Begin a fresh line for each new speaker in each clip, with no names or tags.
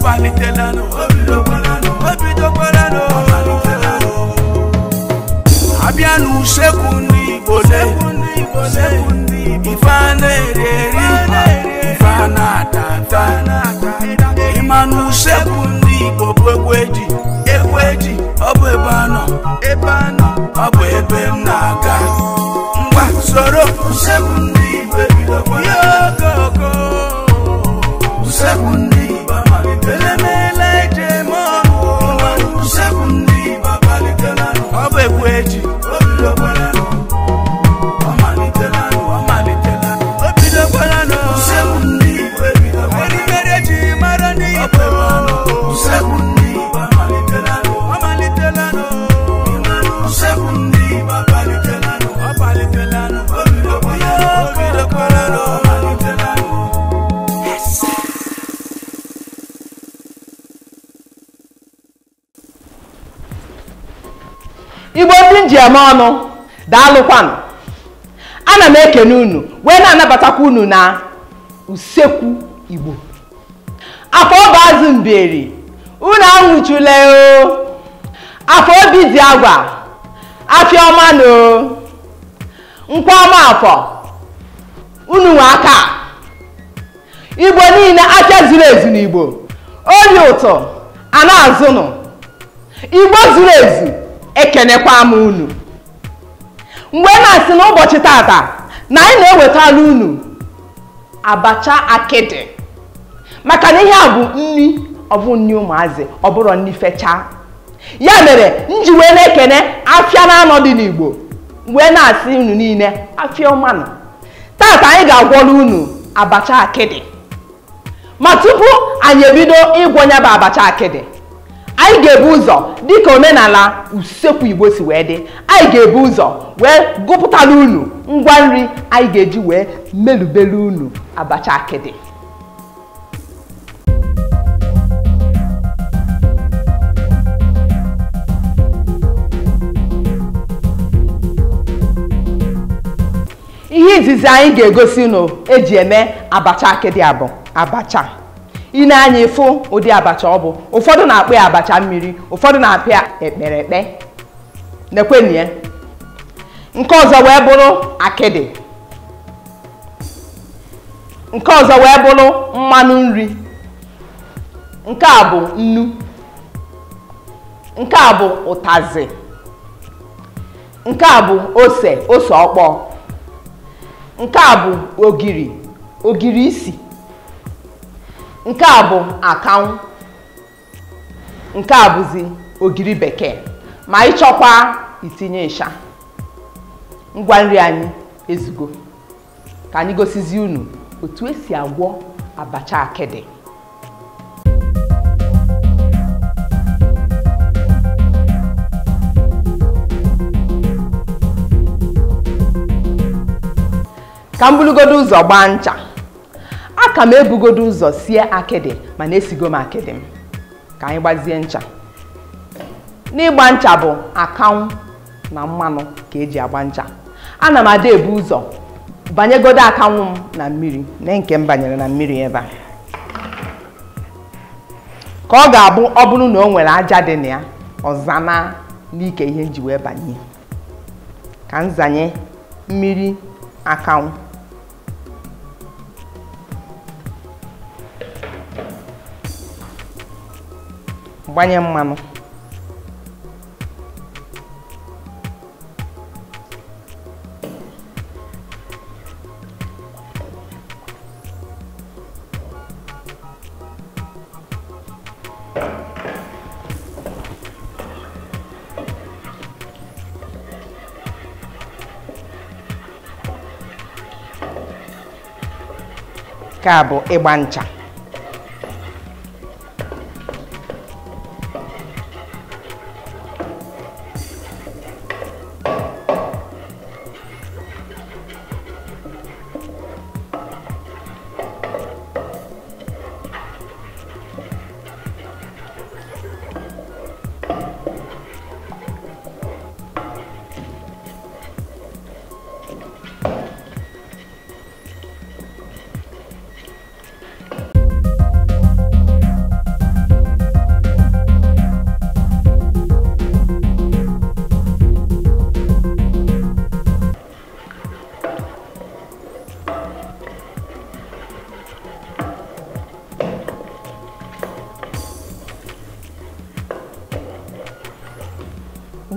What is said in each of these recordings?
ọ̀pálítẹ̀ lánàá obi ló pẹ́ lánàá obi tó pẹ́ lánàá ọ̀pálítẹ̀ lánàá. abíánú ṣẹ́kù ní ìbọ̀lẹ̀ ìfáànà èrè rí ìfáànà àtàtà ìmánú ṣẹ́kù ebe m ngwa soro ṣẹ́kù ní ìbọ̀bọ̀ egwèjì. Remember
eme ọnụ daalụkwanụ ana m ekene unu wee na-anabatakwa unu na usekwu igbo afọ ọba azụ mberi unu anwụchule oo; afọ obi dị agwa afọ ọma na nkwa ọma afọ unu nwe aka igbo niile afia zuru ezu n'igbo oyi ụtọ a ana azụnụ igbo zuru ezu ekenekwa m unu mgbe na-asị n'ụbọchị tata na anyị na-ewetala unu abacha akịdị maka na ihe a bụ nri ọbụ nri ụmụazị ọbụrụ nri fechaa ya mere nji wee na-ekene afịa na anọ dị n'igbo wee na-asị unu niile afịa ọmanụ tata anyị ga-agwọrọ unu abacha akịdị ma tupu anyị ebido ịgwọ nya bụ abacha akịdị anyị ga-ebu ụzọ dịka omenala usekwu igbo si wee dị anyị ga-ebu ụzọ wee gụpụtara unu ngwa nri anyị ga-eji wee melubere unu abacha akịdị ihe izizi anyị ga-egosi unu eji eme abacha akịdị abụ abacha ị na-anya ịfụ ụdị abacha ọ bụ ụfọdụ na-akpụ ya abacha mmiri ụfọdụ na-apịa ekpere ekpe nekwenụ nke ọzọ wee bụrụ akịdị nke ọzọ wee bụrụ mmanụ nri nke a bụ nnu nke a bụ ụtazị nke a bụ ose ose ọkpọọ nke a bụ ogiri ogiri isi nke a bụ akawụ nke a bụzi ogiri bekee ma ịchọkwa itinye ịsha ngwa nri anyị ezugo ka anyị gosizi unu otu esi agwọ abacha akịdị ka m ụzọ gbaa ncha aka m ebugodo ụzọ sie akịdị mana esigo m akịdị m ka anyị gbazie ncha n'ịgba ncha bụ akanwụ na mmanụ ka eji agba ncha ana m ada ebu ụzọ banyegodo akanwụ m na mmiri na nke m banyere na mmiri ebe a ka ọ ga-abụ ọ bụrụ na o nwere aja dị na ya ọza na n'ike ihe nji wee banye ka zanye mmiri akanwụ gbanye mmanụ nke a bụ ịgba ncha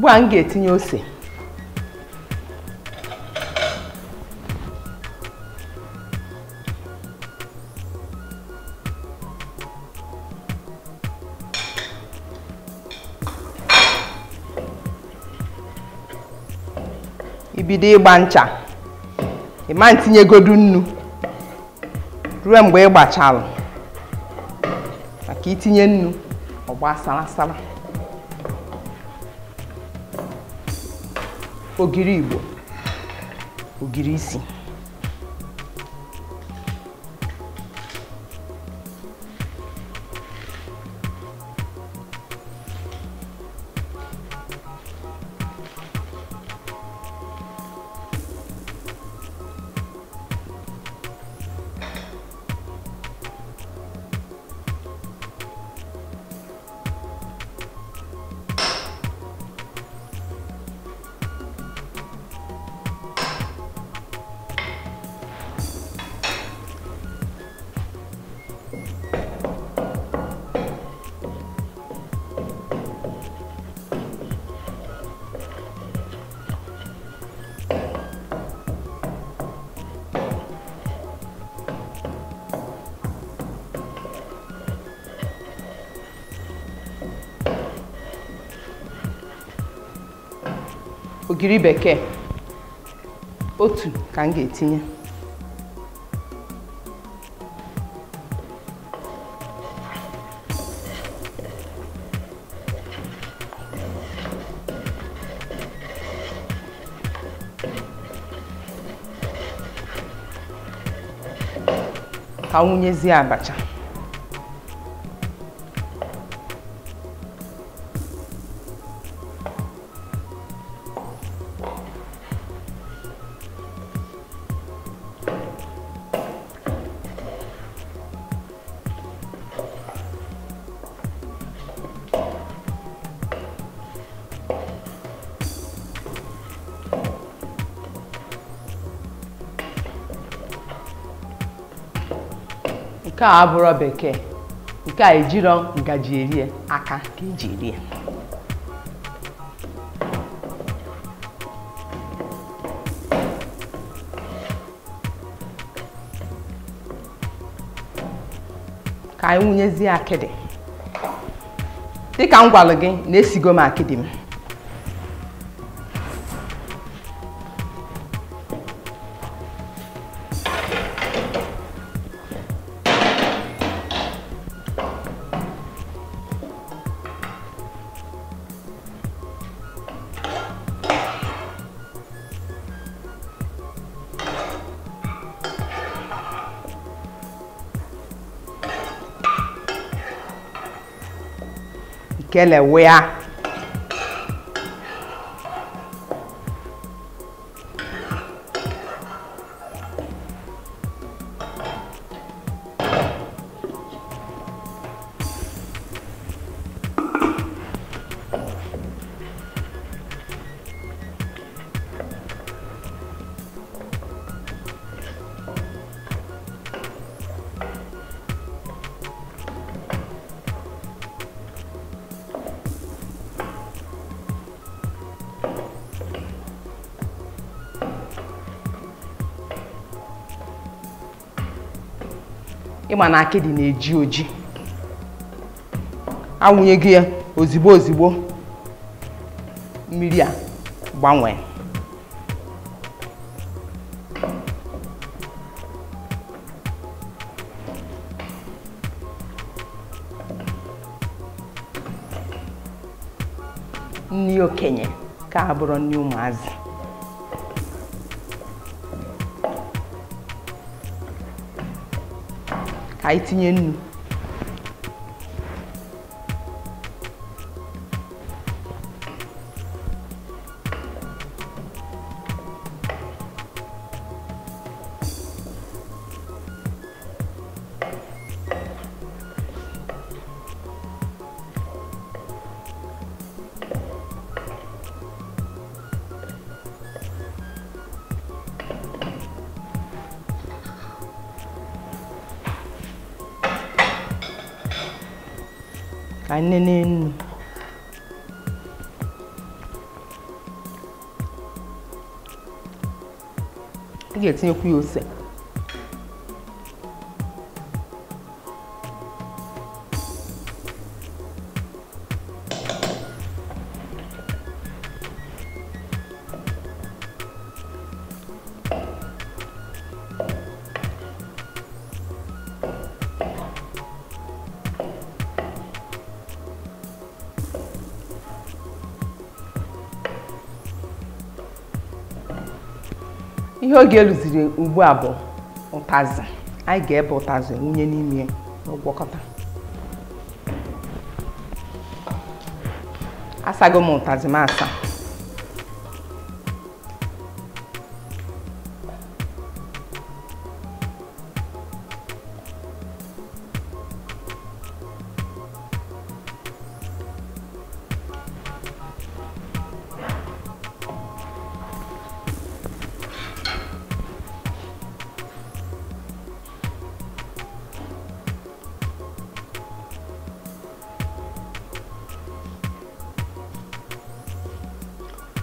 ugbu m ga-etinye ose ibido ịgba ncha ịma ntinyegodu nnu ruo mgbe ị gbachalụ maka itinye nnu ọgba sara sara O guiribo. O guirizinho. ogiri bekee otu ka m ga-etinye ka wụnyezie abacha nke a bekee nke a ejirọ ngaji erie aka ka eji erie ka anyị wụnyezie akịdị dịka m gwalụ gị na-esigo m akịdị m kelewea ịma na akịdị na-eji oji awụnye gị ya ozigbo ozigbo mmiri a gbanwee nri okenye ka a nri ụmụazị aí tinye nnu ka nnene nnu ị ga-etinyekwu ya ose ihe oge eluziri ugbu a bụ ụtazị anyị ga-ebe ụtazị wunye n'ime n'ụgwọkọta asago m ụtazị m asa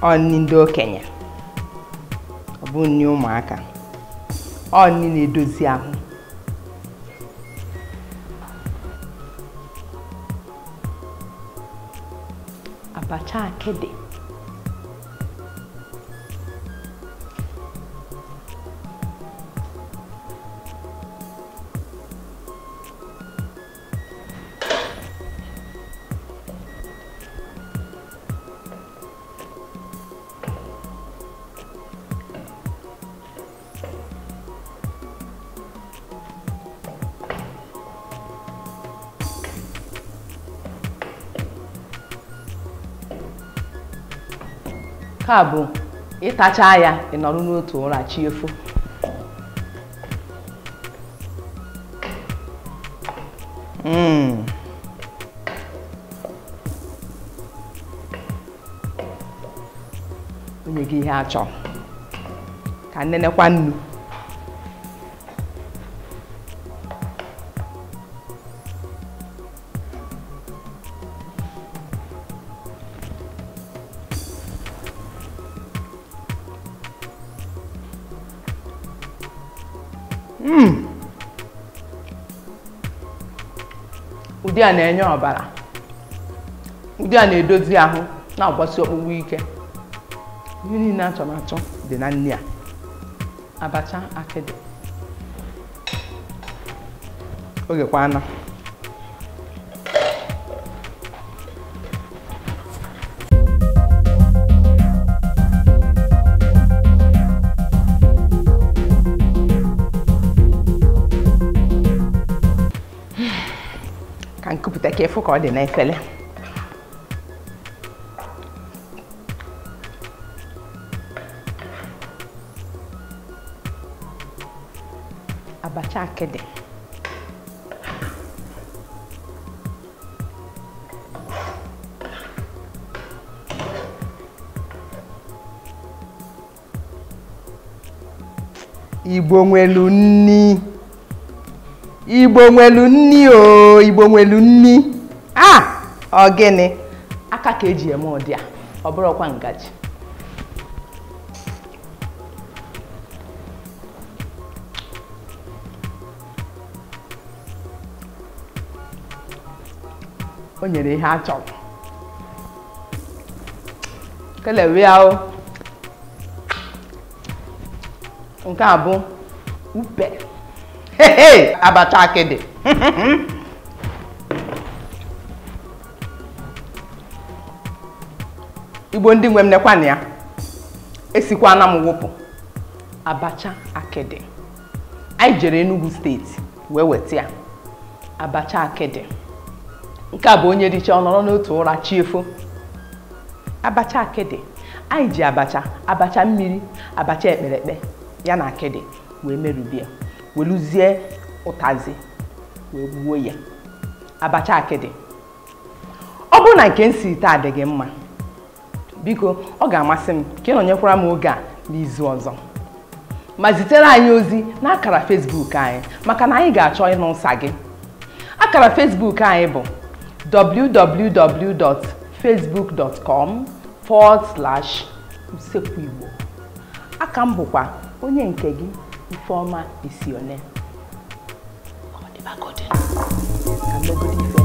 ọ ndị okenye ọ bụ ụmụaka ọ na-edozi ahụ abacha akịdị nke a bụ ịtacha ya ị nọrọ n'otu ụra chi efo hmm. onye gị ihe achọ ka nnenekwa nnu ụdị a na-enye ọbara ụdị a na-edozi ahụ na-agbasi ọkpụkpụ ike ihe niile achọ dị na nri a abacha akịdị oge kwa anọ careful ka ọ dị n'efere abacha akịdị igbo nwelu nni igbo nwelu nni o igbo nwelu nni a ọ gịnị aka ka eji eme ụdị a ọ bụrụkwa ngaji o nyere ihe a chọrọ kelewe nke a bụ upe abacha akịdị igbo ndị nwe m nekwana ya esikwana m wụpụ abacha akịdị anyị jere enugu steeti wee weta ya abacha akịdị nke a bụ onye dịcha ọ nọrọ n'otu ụra chiefo abacha akịdị anyị ji abacha abacha mmiri abacha ekperekpe ya na akịdị wee merubie weluzie ụtazị wee gbuo ya abacha akịdị ọ bụrụ na nke m si dị gị mma biko ọ ga-amasị m ka ị nọnyekwara m oge a n'izu ọzọ ma zitere anyị ozi n'akara akara Facebook anyị maka na anyị ga-achọ ịnụ nsa gị akara Facebook anyị bụ www.facebook.com forward slash usekwu igbo aka m bụkwa onye nke gị Ifeoma is your name. God, God. I'm not good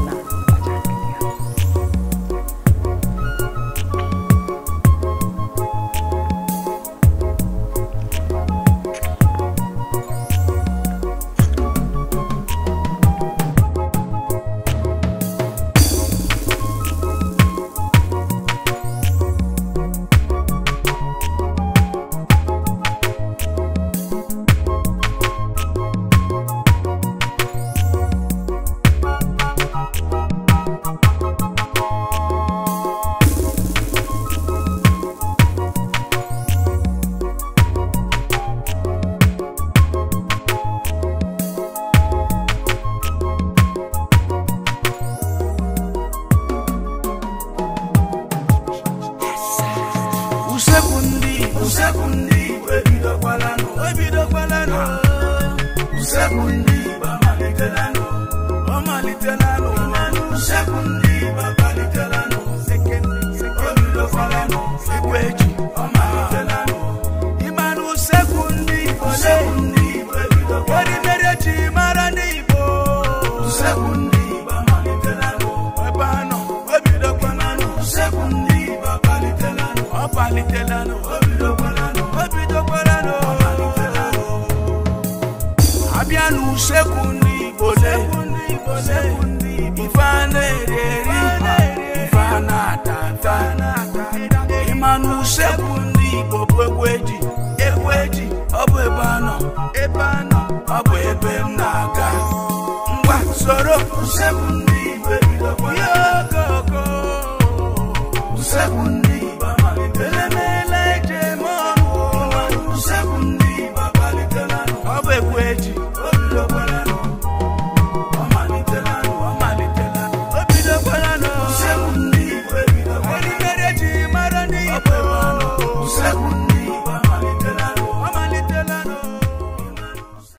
them